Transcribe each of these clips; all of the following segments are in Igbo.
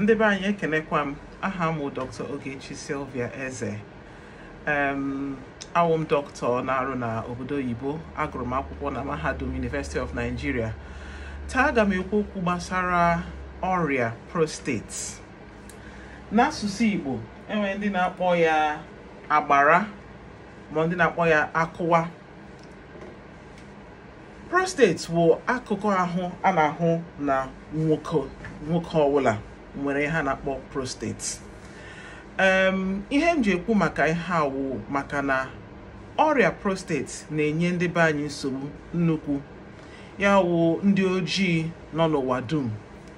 ndị be anyị ekenekwa m aha m dr ogechi silvia eze em awụ m dọkịta na-arụ na obodo oyibo agụrụ m akwụkwọ na mahadum university of nigeria taa aga m ekwu okwu gbasara ọrịa prostate n'asụsụ igbo enwere ndị na-akpọ ya agbara ma ndị na-akpọ ya akụwa prostate bụ akụkụ ahụ a na-ahụ na nwoke nwoke ọbụla nwere ihe na-akpọ prostate ihe m ji ekwu maka ihe awụ maka na ọrịa prostate na-enye ndị be anyị nsogbu nnukwu ya wụ ndị ojii nọ n'ụwa dum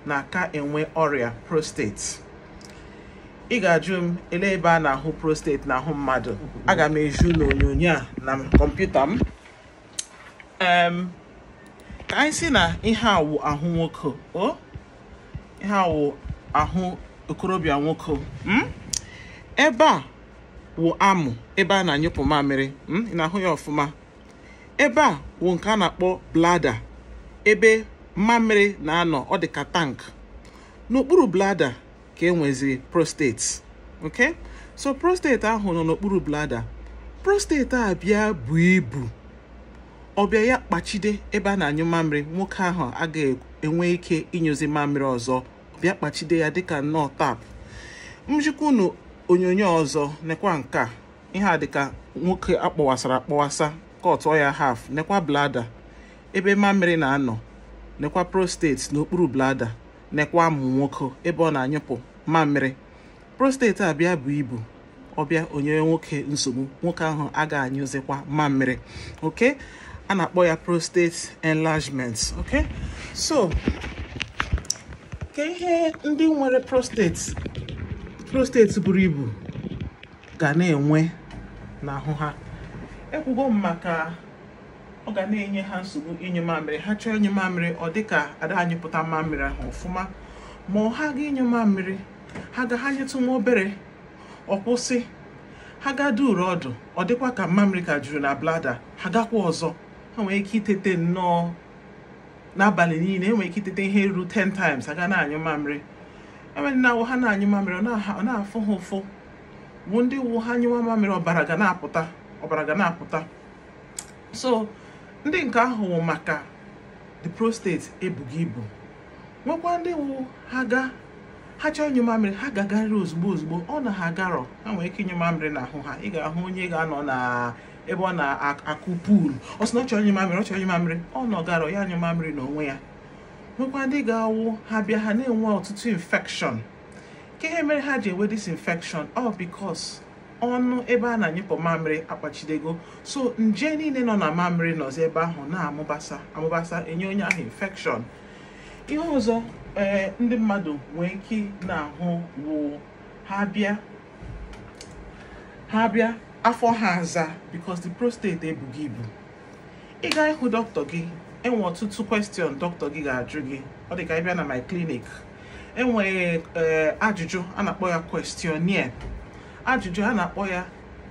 na-aka enwe ọrịa prostate ị ga-ajụ m ele ebe a na-ahụ prostate ahụ mmadụ aga m eju n'onyonyo a na kọmputa m ka anyị si na ihe awụ ahụ nwoke o ahụ okorobịa nwoke hmm? ebe a wụ amụ ebe a na-anyụpụ mamịrị hmm? na-ahụ ya ọfụma ebe a wụ nke a na-akpọ blada ebe mamịrị na-anọ ọ dị ka tank n'okpuru blada ka e nweziri prostate ok so prostate ahụ nọ n'okpuru blada prostate a bịa bụ ibu ọbịa ya kpachide ebe a na-anyụ mamịrị nwoke ahụ agaghị enwe ike ịnyụzi mamịrị ọzọ bịa kpachide ya dịka nnọọ tap m jikwa onyonyo ọzọ nekwa nke ihe a dịka nwoke akpọwasara akpọwasa ọtọ ya haf nekwa blada ebe mamịrị na-anọ nekwa prostate n'okpuru blada nekwa mụ nwoke ebe ọ na-anyụpụ mamịrị prostate abịa bụ ibu ọbịa onye nwoke nsogbu nwoke ahụ ga anyụzikwa mamịrị oke a na-akpọ ya prostate enlargement okay so ka ihe ndị nwere prostate prostate buru ibu ga na-enwe n'ahụ ha ekwugo m maka ọ ga na-enye ha nsogbu ịnyụ mamịrị ha chọọ ịnyụ mamịrị ọ dịka ada anyị pụta mamịrị ahụ ọfụma ma ọ ha ga ịnyụ mamịrị ha ga ha nyetụ nwa obere ọ kwụsị ha ga duru ọdụ ọ dịkwa ka mamịrị ka juru na blada ha gakwa ọzọ ha nwere ike itete nnọọ n'abalị niile enwere ike itete ihe ruru 10 times aga na-anyụ mamịrị enwere na-awụ ha na-anyụ mamịrị ọ na-afụ ha ụfụ bụ ndị wụ ha anyụwa mamịrị ọbara ga na-apụta ọbara ga na-apụta so ndị nke ahụ wụ maka the prostate ebughị ibu nwekwa ndị wụ ha ga ha chọọ ịnyụ mamịrị ha agarịrị ozugbo ozugbo ọ na ha agarọ ha nwere ike ịnyụ mamịrị ahụ ha ị ga-ahụ onye ga-anọ na ebe ọ na-akụ puulu ọ sị na ọ chọrọ mamịrị ọ chọrọ nye mamịrị ọ nọgara ya mamịrị n'onwe ya nwekwa ndị ga-awụ ha bịa ha na-enwe ọtụtụ infekshọn ka ihe mere ha ji enwe infekshọn ọ bikos ọnụ ebe a na-anyịpụ mamịrị akpachidego so nje niile nọ na mamịrị nọzi ebe ahụ na-amụbasa amụbasa enye onye ahụ infekshọn ihe ọzọ ee eh, ndị mmadụ nwee ike na-ahụ wụ ha bịa ha bịa afọ ha aza because the prostate ebughị ibu ị gaa ịhụ dọkịta gị enwe ọtụtụ question dọkịta gị ga-ajụ gị ọ dị ka ịbịa na my clinic enweghị eh, ajụjụ a na-akpọ ya questionnaire ajụjụ a na-akpọ ya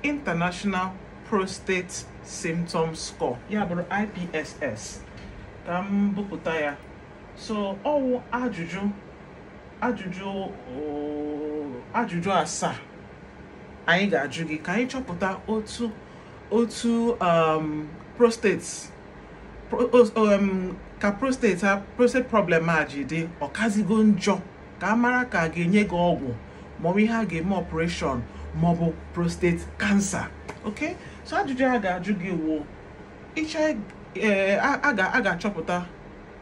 international prostate symptom score ya bụrụ IPSS ka m ya so ọwụ ajụjụ ajụjụ oh, ajụjụ asaa anyị ga-ajụ gị ka anyị chọpụta otu otu um, um, prostate ka prostate problem a ji dị ọkazigo njọ ka a mara ka a ga-enye gị ọgwụ maọbụ ihe a ga-eme ọpụreshọn maọbụ prostate kansa ok so ajụjụ a ga-ajụ gị wuo eh, a ga-achọpụta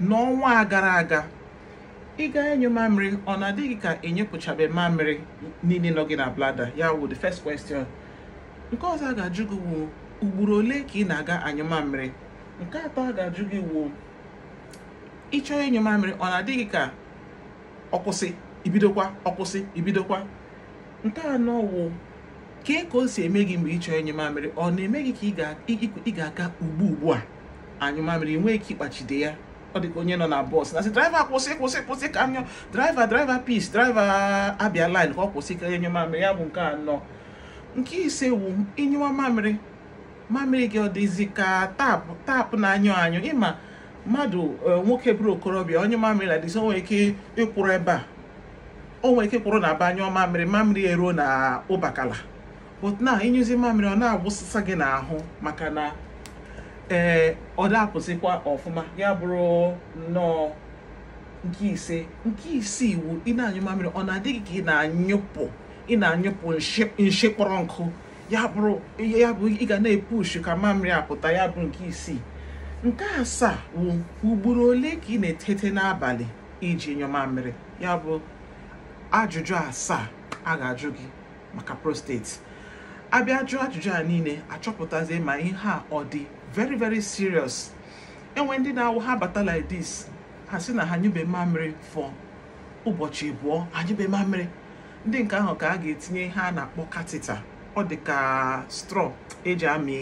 n'ọnwa gara aga ịga enyo mamịrị ọ na-adịghị ka enyepụchabe mamịrị niile nọ gị na blada ya the first question nke ọzọ a ga-ajụ gị wụ ugboro ole ka ị na-aga anyụ nke atọ a ga-ajụ gị wu ịchọọ enyo mamịrị ọ na-adịghị ka ọkwụsị ibidokwa ọkwụsị ibidokwa nke anọ wụ kee ka o si eme gị mgbe ịchọọ enyo mamịrị ọ na-eme gị ka ị ga-aga ugbu ugbu a anyụ mamịrị enweghị ka ịkpachide ya ọ dị ka onye nọ na bọs na-asị draiva kwụsị kwụsị kwụsị ka anyọ draiva draiva pis draiva abịa lin ka ọ kwụsị ka enye mamịrị ya bụ nke anọ nke ise wu ịnyụwa mamịrị mamịrị gị ọ dịzi ka tapụ tapụ na-anyụ anyụ ịma mmadụ e, nwoke bụrụ okorobịa onye mamịrị na-adịzi o nwere ike ịkwụrụ ebe a o nwere ike kwụrụ na ba anyụọ mamịrị mamịrị eruo na ụbakala but na ịnyụzi mamịrị ọ na-agwụsịsa gị n'ahụ maka na ee eh, ọ ọfụma ya bụrụ nnọọ nke ise nke isii iwu ị na-anyụ mamịrị ọ na-adịghị ka ị na-anyụpụ ị na-anyụpụ nshi kpọrọ nkụ ya bụrụ ya bụ ị ga na-epushi ka mamịrị apụta ya bụ nke isii nke asaa wụ ugboro ole ka ị na-etete n'abalị iji nyụ mamịrị ya bụ ajụjụ asaa a ga-ajụ gị maka prostate abịa jụọ ajụjụ a niile achọpụtazie ma ihe a ọ dị very very serious enwe ndị na-awụ ha bata like this ha si na ha nyube mamịrị for ụbọchị abụọ ha nyube mamịrị ndị nke ahụ ka a ga-etinye ha na-akpọ katita ọ dị ka straw eji amị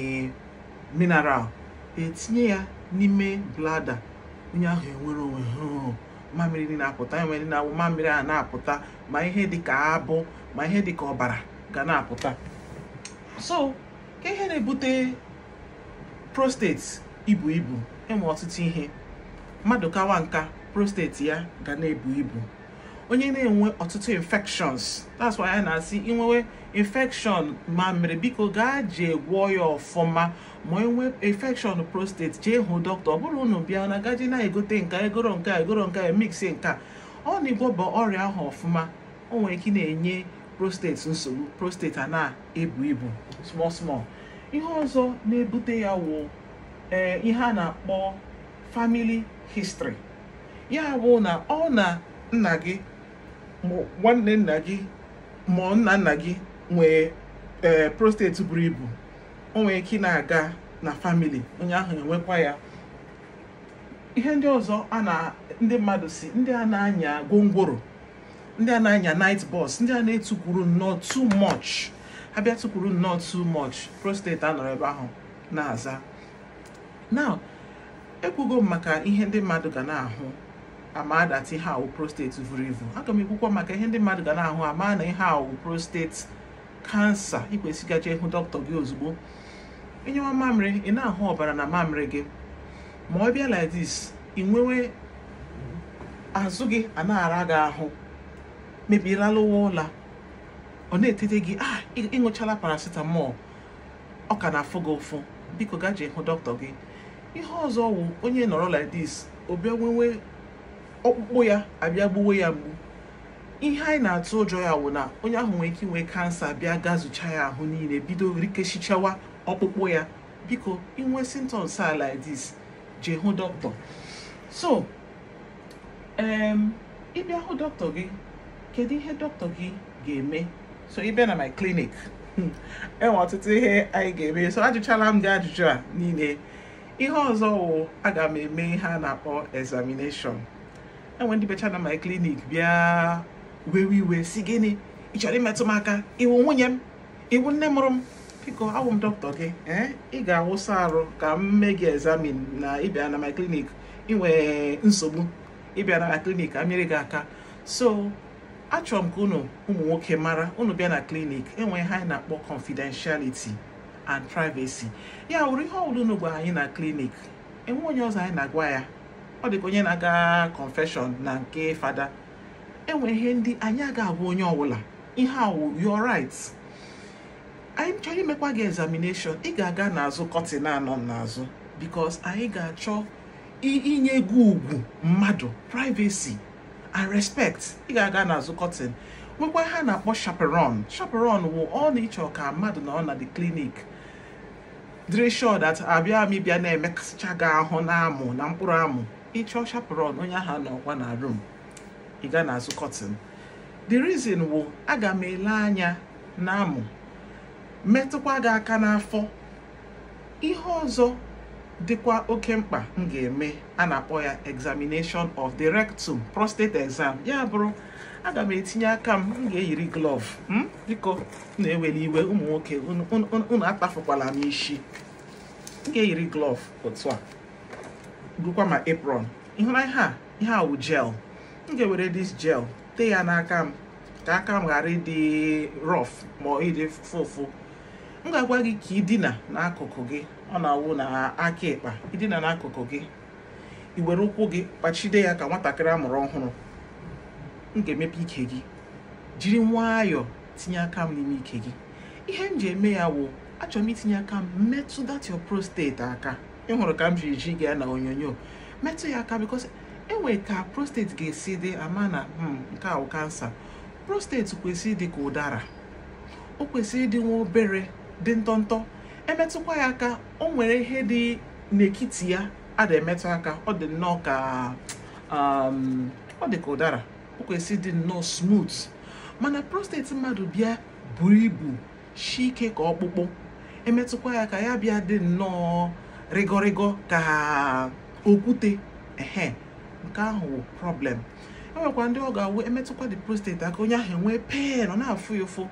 mineral etinye ya n'ime blada onye ahụ enwere onwe mamịrị dị na-apụta enwe ndị na-awụ mamịrị a na-apụta ma ihe dị ka abụ ma ihe dị ka ọbara ga na-apụta so ka ihe na-ebute prostate ibu ibu ịma ọtụtụ ihe mmadụ kawa nka prostate ya ga na-ebu ibu onye na-enwe ọtụtụ infections that's why a na-asị inwewe infection ma mere biko gaa jee gwọọ ya ọfụma ma enwe infection prostate jee hụ dọkịta ọ bụrụ unu bịa na gaji na-egote nka egoro nka egoro nke mix nka ọ na-igwọba ọrịa ahụ ọfụma o nwere ike na-enye prostate nsogbu prostate a na-ebu ibu small small. ihe ọzọ na-ebute ya wụ eh, ihe a na-akpọ famili histri ya bụ na ọ na nna gị nwanne nna gị ma nna nna gị nwee ee eh, prostate buru ibu o ike na-aga na famili onye ahụ enwekwa ya ihe ndị ọzọ a na ndị mmadụ si ndị a na-anya gwongworo ndị a na-anya night bus ndị a na-etukwuru nnọọ too much ha abịa tụkwuru nnọọ too much prostate anọrọ ebe ahụ na-aza now ekwugo m maka ihe ndị mmadụ ga na-ahụ ama that ihe awụ prostate vuru evu aga m ekwukwo maka ihe ndị mmadụ ga na-ahụ ama na ihe awụ prostate kansa ikwesịgacha ịhụ dọkịta gị ozugbo ịnyewa mamịrị ị na-ahụ ọbara na mamịrị gị ma ọ bịa like ị nwewe azụ gị a na-ara gị ahụ mebirala ụwa ụla ọ na-etete gị a ah, ịṅụchala paracetamol ọ ka na-afụ gị ụfụ biko gaa jee hụ dọkịta gị ihe ọzọ wụ onye nọrọ like this obịa ọkpụkpụ ya abịa gbuwe ya mgbu ihe anyị na-atụ ụjọ ya wụ na onye ahụ nwere ike inwe kansa bịa gaa zụcha ya ahụ niile bido rikechichawa ọkpụkpụ ya biko inwe symptoms a like this jee hụ dọkịta so ịbịa hụ dọkịta gị kedu ihe dọkịta gị ga-eme so ị bịa na my clinic enwe ọtụtụ ihe anyị ga-eme so ajụchala m gị ajụjụ a niile ihe ọzọ wụ aga m eme ihe a na-akpọ examination enwe ndị becha na my clinic bịa wewe iwe si gịnị ị chọrọ imetụ m aka iwu nwunye m iwu nne mụrụ m biko awụ m dọkịta gị ee eh? ị ga-awụsa arụ ka m mee gị examin na ịbịa na my clinic inwee nsogbu ịbịa na my clinic ka gị aka so achọrọ m ka unu ụmụ nwoke mara unu bịa na klinik enwe ha anyị na-akpọ confidentiality and privacy ya wụrụ ihe ọbụla unu gwara anyị na klinik enwe onye ọzọ anyị na-agwa ya ọ dịka onye na-aga confession na nke fada enwe ihe ndị anyị agaghị agwa onye ọbụla ihe awụ your anyị chọrọ imekwa gị examination ị ga-aga n'azụ kọtịn anọ n'azụ bikos anyị ga-achọ inye gị ugwu mmadụ privacy and respect ị ga-aga n'azụ kọtin nwekwa ha na-akpọ chaperon chaperon wụ ọ na ịchọ ka mmadụ na na the clinic dịrị sure that abịa m ịbịa na emekasịcha gị ahụ na amụ na mkpụrụ amụ ịchọ chaperon onye ahụ nọkwa na room ị n'azụ kọtin the reason wụ aga m ele anya na amụ metụkwa gị aka n'afọ ihe ọzọ dịkwa oke mkpa m ga-eme a na-akpọ ya examination of the rectum prostate exam ya bụrụ aga m etinye aka m m ga-eyiri glove hmm? biko na-eweli iwe ụmụ nwoke unu atafukwala m isi m ga-eyiri glove otu a bụkwa ma apron ịhụra ihe a ihe a wụ gel m ga-ewere dis gel tee ya n'aka m ka aka m ghara ịdị rọf ma ọ ịdị fụfụ m ga-agwa gị ka ị dina n'akụkụ gị ọ na-awụ na aka ịkpa idina n'akụkụ gị Ị were ụkwụ gị kpachide ya ka nwatakịrị a mụrụ ọhụrụ m ga-emepe ike gị jiri nwayọọ tinye aka m n'ime ike gị ihe m ji eme ya wụ achọrọ m itinye aka m metụ that your prostate aka ị hụrụ ka m jiri ji gị ya na onyonyo metụ ya aka because enwere ka prostate ga-esi dị ama na hmm, nke awụ kansa prostate kwesịrị ịdị ka ụdara o kwesịrị ịdị nwa obere dị ntọntọ emetụkwa ya aka o nwere ihe dị n'ekiti ya a emetụ aka ọ dị nnọọ ka um, ọ dị ka ụdara o kwesị dị nnọọ smooth mana prostate mmadụ bịa buru ibu shi ike ka ọkpụkpụ emetụkwa ya ka ya bịa dị nnọọ rịgọrịgọ ka okwute ehe nke ahụ problem enwekwa ndị ọ ga-awụ emetụkwa dị prostate aka onye ahụ enwee pen ọ na-afụ ya ụfụ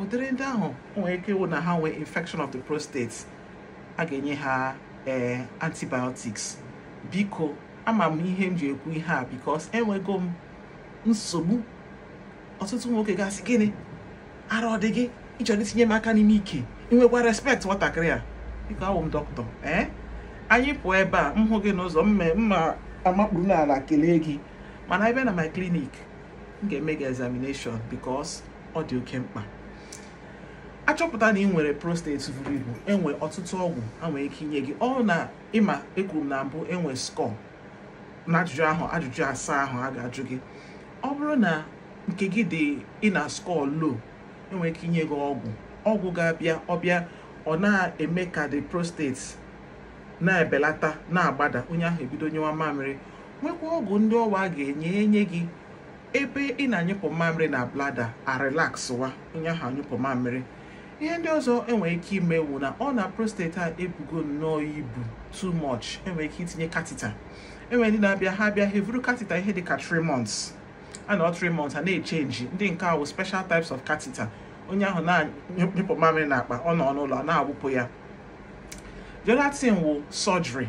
ụdịrị ndị ahụ nwere ike ịwụ na ha nwee infection of the prostate a ga-enye ha ee antibiotics biko ama m ihe m ji ekwu ihe a bikos enwego m nsogbu ọtụtụ nwoke gasị gịnị ara ọ dị gị ịchọrọ itinye m aka n'ime ike ịnwekwa respect nwatakịrị a biko awụ m dọkịta ee anyị pụọ ebe a m hụ gị n'ụzọ mma amakpuru n'ala kelee gị mana ebe na my clinic m ga-eme gị examination bikos ọ dị oke mkpa achọpụta na ị nwere prostate buru ibu enwe ọtụtụ ọgwụ a nwere ike inye gị ọ na ịma ekwuru na mbụ enwe skọ na ajụjụ ahụ ajụjụ asaa ahụ a ga-ajụ gị ọ bụrụ na nke gị dị ị na skọ lo enwere ike inye gị ọgwụ ọgwụ ga-abịa ọbịa ọ na-eme ka dị prostate na-ebelata na-agbada onye ahụ ebido nyewa mamịrị nwekwa ọgwụ ndị ọwa ga-enye enye gị ebe ị na-anyụpụ mamịrị na blada arelakswa onye ahụ anyụpụ mamịrị ihe ndị ọzọ enwere ike ime wụ na ọ na prostate a ebugo nnọọ ibu too much enwere ike itinye katita enwere ndị na-abịa ha abịa ha evuru katita ihe dịka 3 months a nọ 3 months a na-echenji ndị nke ahụ special types of katita onye ahụ na-anyụpụ mamịrị na akpa ọ nọ n'ụlọ na-awụpụ ya gelatin wụ surgery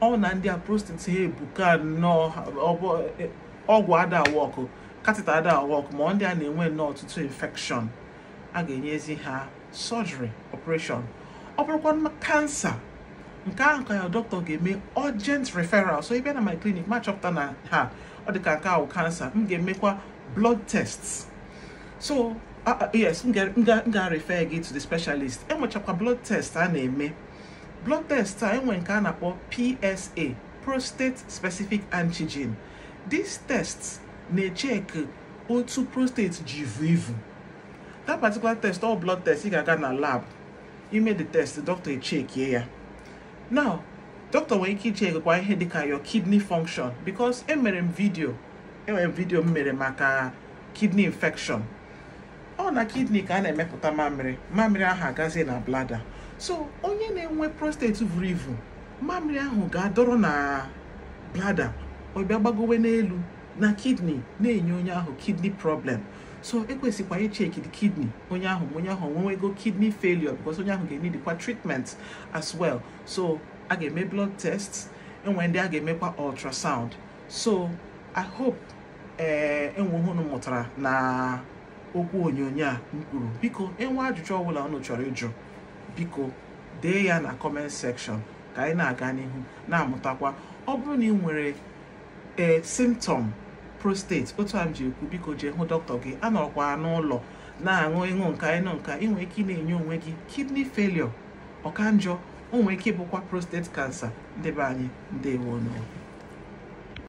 ọ na ndị a prostate ha ebuka nnọọ ọgwụ ada katita ada wọkụ ma ndị a na-enwe nnọọ ọtụtụ infection a ga-enyezi ha surgery operation ọ bụrụkwa kansa nke ahụ ka ya dọkịta ga-eme urgent referral so ịbịa na my clinic ma chọpụta na ha ọ dịka nke ahụ kansa m ga-emekwa blood tests so yes m ga-refer gị to the specialist enwechakwa blood test a na-eme blood test a enwe nke a na-akpọ PSA prostate specific antigen these test na-echeki otu prostate ji ivu that particular test all blood test ị ga-aga na lab you made the test doctor echekie ya now doctor nwere ike ichekwa ihe dịka your kidney function because emere m vidio enwere m vidio m mere maka kidney infection ọ na kidney ka a na-emepụta mamịrị mamịrị ahụ agazie na blada so onye na-enwe prostate vụrụ ivu mamịrị ahụ ga-adọrọ na blada ọ gbagowe n'elu na kidney na-enye onye ahụ kidney problem so ekwesịkwa icheki the kidney onye ahụ onye ahụ ego kidney failure because onye ahụ ga-enidikwa treatment as well so a ga-eme blood test enwe ndị a ga-emekwa ultrasound so i hope ee eh, enwe ọhụrụ mụtara na okwu onyonyo a mkpuru biko enwe ajụjụ ọbụla ọnụ chọrọ ịjụ biko dee ya na comment section ka anyị na-aga n'ihu na-amụtakwa ọ bụrụ na ị nwere ee eh, symptom prostate otu a m ji ekwu biko jee hụ dọkịta gị anọrọkwa n'ụlọ na-aṅụ ịṅụ nka ịṅụ nka ị ike ị na-enye onwe gị kidney failure ọka njọ ike ịbụkwa prostate cancer ndị be anyị ndewonụ